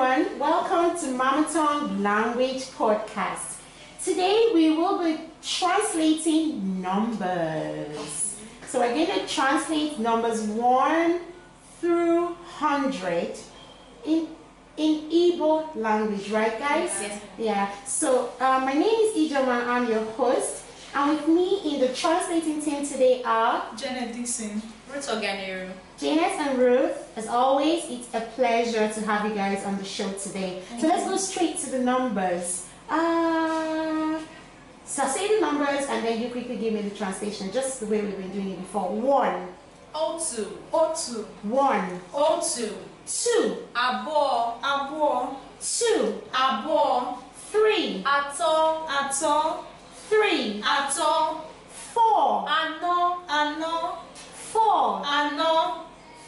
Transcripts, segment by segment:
everyone. Welcome to Mama Tongue Language Podcast. Today we will be translating numbers. So we're going to translate numbers 1 through 100 in in Igbo language, right guys? Yes. Yeah. So uh, my name is Ijoma. I'm your host. And with me in the translating team today are Janet Dixon, Ruth Oganero, Janet and Ruth. As always, it's a pleasure to have you guys on the show today. Thank so let's go straight to the numbers. Uh, so i say the numbers and then you quickly give me the translation, just the way we've been doing it before. One. O two. O two. One. O two. Two. Abo. Abo. Two. Abo. Three. Ato. Ato three, ato, four, ano, ano, four, ano,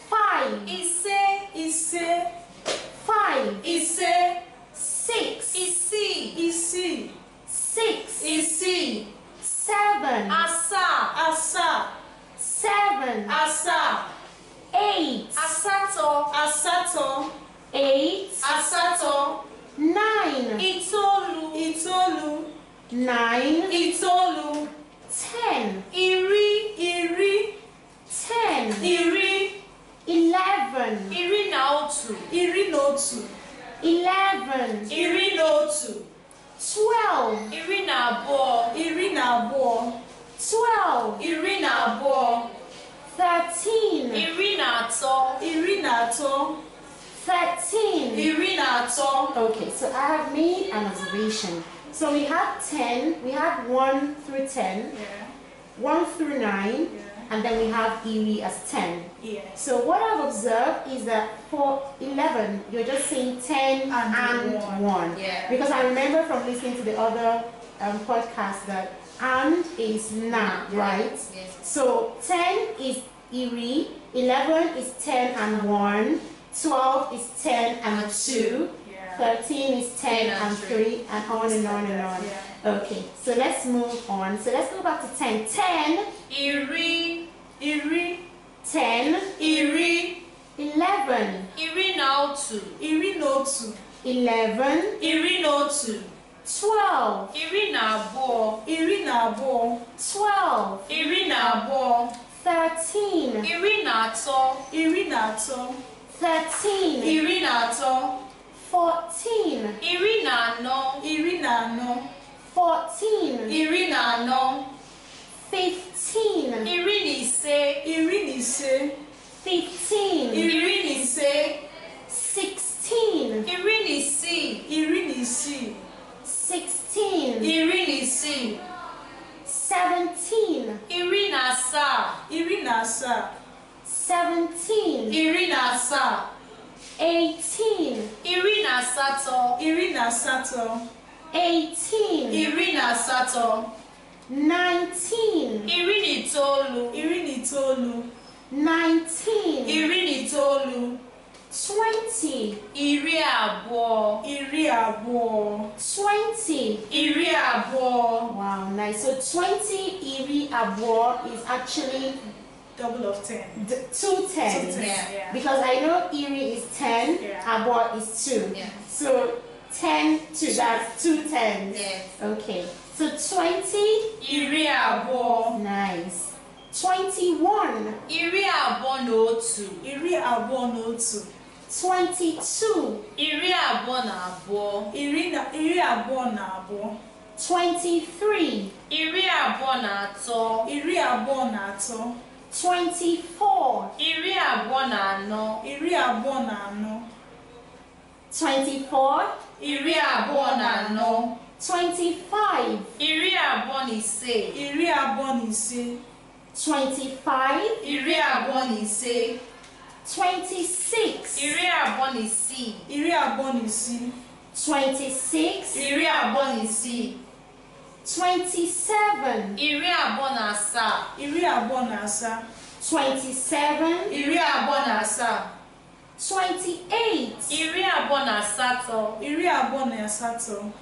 five, ise, ise, five, ise, six, isi, see. six, see. seven, asa, asa. nine, ìtọ́lu, ten, ìrí, ìrí, ten, ìrí, eleven, ìrí na ìrí na eleven, ìrí na twelve, ìrí na ìrí na twelve, ìrí na thirteen, ìrí na atọ, ìrí na atọ, 13. Irina, so. Okay, so I have made an observation. So we have 10, we have 1 through 10, yeah. 1 through 9, yeah. and then we have Erie as 10. Yeah. So what I've observed is that for 11, you're just saying 10 and, and 1. 1. Yeah. Because I remember from listening to the other um, podcast that and is na, yeah. right? Yes. So 10 is Erie, 11 is 10 and 1, 12 is 10 and 2, 13 is 10 yeah, and 3 and on and on and on. Yeah. Okay, so let's move on. So let's go back to 10. 10. Iri. Iri. 10. Iri. 11. Iri no 2. Iri no 2. 11. Iri no 2. 12. Iri na abuo. Iri na 12. Iri na 13. Iri na ato. Iri na 13. Iri na Fourteen. Irina no. Irina no. Fourteen. Irina no. Fifteen. Irini say. Irini say. Fifteen. Irini say. Irina Sato, asatọ. eighteen. iri na asatọ. nineteen. Irini Tolu, itoolu. iri na itoolu. nineteen. iri na twenty. iri abụọ. iri abụọ. twenty. iri abụọ. wow nice so twenty iri abụọ is actually. double of ten. D two tens. Two tens yeah. Because I know Erie is ten, yeah. Abor is two. Yeah. So 10 to that two tens. Yes. Okay. So 20. Iriabo. Nice. 21. Iriabo no two. Iriabo no two. 22. Iriabo na abo. Iriabo na abo. 23. Iriabo na ato. Iriabo na ato. 24. Iriabo na ano. Iriabo na ano. 24 iri abụọ na anọ 25 iri abụọ na ise iri abụọ na ise 25 iri abụọ na ise 26 iri abụọ na isii iri abụọ na isii 26 iri abụọ na isii 27 iri abụọ na asaa iri abụọ na asaa 27 iri abụọ na asaa twenty-eight. Iri abụọ na asatọ.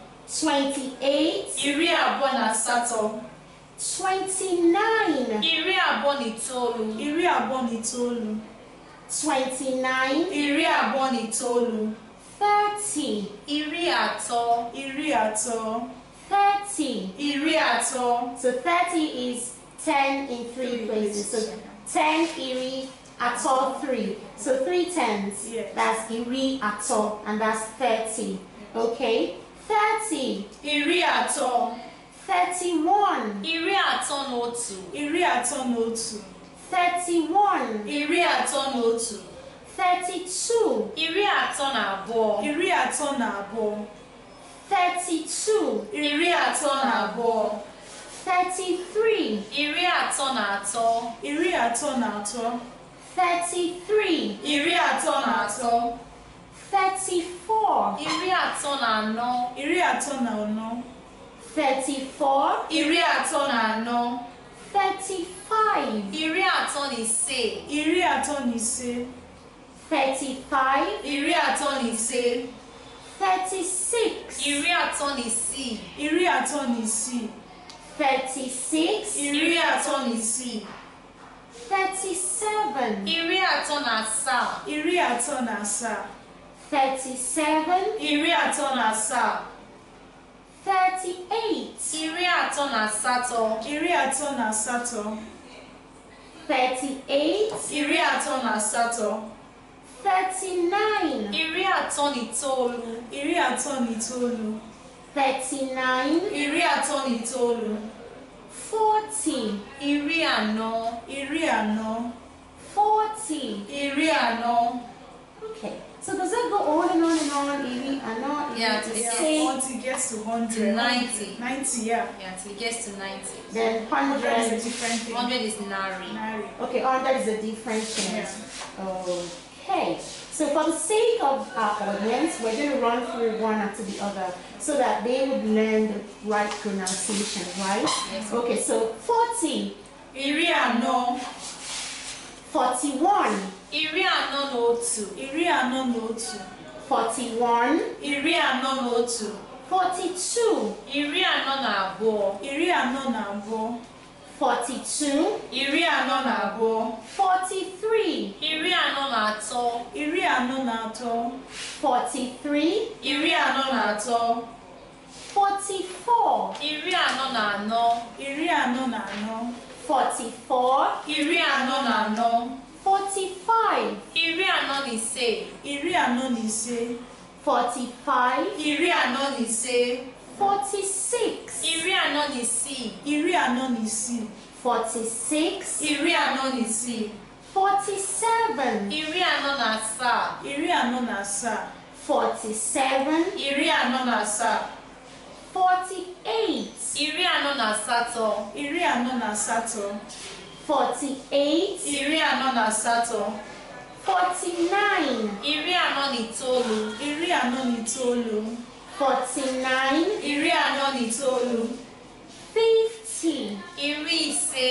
twenty-eight. Iri abụọ twenty-nine. Iri abụọ na itoolu. twenty-nine. Iri abụọ thirty. Iri atọ. thirty. Iri So thirty is ten in three places. So ten iri. At all three. So three tens. Yes. That's iri all, and that's thirty. Okay. Thirty. Iri all. Thirty-one. Iri all. no two. Iri all. no two. Thirty-one. Iri all. no two. Thirty-two. Iri ato na abo. Iri ato na abo. Thirty-two. Iri ato na abo. 33. Iri ato na ato. Iri all. na ato. Thirty-three. Ìrí àtọ́ nà àtọ́. Thirty-four. Ìrí àtọ́ nà ànọ́. Ìrí àtọ́ nà ànọ́. Thirty-four. Ìrí àtọ́ nà ànọ́. Thirty-five. Ìrí àtọ́ nà ìse. Ìrí àtọ́ nà ìse. Thirty-five. Ìrí àtọ́ nà ìse. Thirty-six. Ìrí àtọ́ nà ìsì. Ìrí àtọ́ nà ìsì. Thirty-six. Ìrí àtọ́ nà ìsì. Thirty-seven. Iri atọ na asaa. Iri atọ na asaa. Thirty-seven. Iri atọ na asaa. Thirty-eight. Iri atọ na asatọ. Iri atọ na asatọ. Thirty-eight. Iri atọ na asatọ. Thirty-nine. Iri atọ na itoolu. Iri atọ na itoolu. Thirty-nine. Iri atọ na itoolu. Forty. Iri anọ. Iri anọ. Forty. Iri anọ. Okay. So does that go on and on and on? Iri anọ. Yeah, to yeah, Forty gets to hundred. Ninety. Ninety, yeah. Yeah, till it gets to ninety. Then hundred is a different thing. Hundred is nari. Nari. Okay, hundred is a different thing. Yeah. Okay. So for the sake of our audience, we're going to run through one after the other so that they would learn the right pronunciation, right? Yes. Okay, so 40 iri anọ 41. iri anọ na otu iri anọ na otu iri anọ na otu iri anọ na abụọ iri anọ na abụọ 42 iri anọ na abụọ 43 iri anọ na atọ iri anọ na atọ iri anọ na atọ 44 iri anọ na anọ iri anọ na anọ Forty-four. Ìrí na nà nọ. Forty-five. Ìrí àná se. Ìrí àná nì se. Forty-five. Ìrí ni se. Forty-six. Ìrí ni nì si. Ìrí ni nì si. Forty-six. Ìrí àná nì si. Forty-seven. Ìrí àná sa. Ìrí àná nà sa. Forty-seven. Ìrí na sa. Forty-eight. Iri anọ na asatọ. Iri anọ na asatọ. Forty-eight. Iri anọ na asatọ. Forty-nine. Iri anọ na itoolu. Iri anọ na itoolu. Forty-nine. Iri anọ na itoolu. Fifty. Iri ise.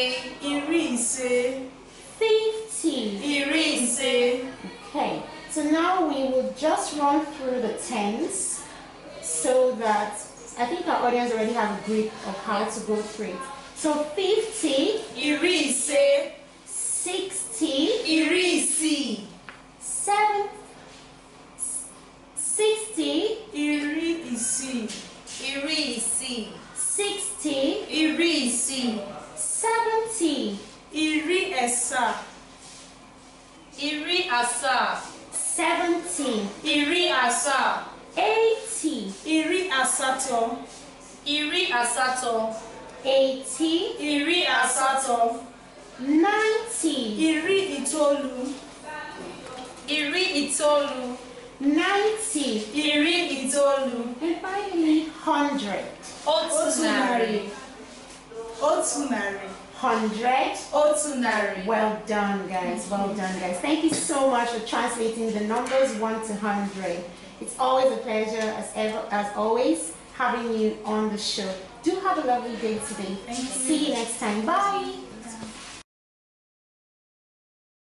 Iri ise. Fifty. Iri ise. Okay, so now we will just run through the tens so that I think our audience already have a grip of how to go through it. So 50. Irise. 60. Irisi. 70. 60. asatọ. Eighty. Iri asatọ. Ninety. Iri Itolu. Iri Itolu Ninety. Iri Itolu And finally, hundred. Otunari. Otunari Hundred. Otunari. Well done, guys. Well done, guys. Thank you so much for translating the numbers one to hundred. It's always a pleasure, as ever, as always, having you on the show. Do have a lovely day today. You. See you next time. Bye.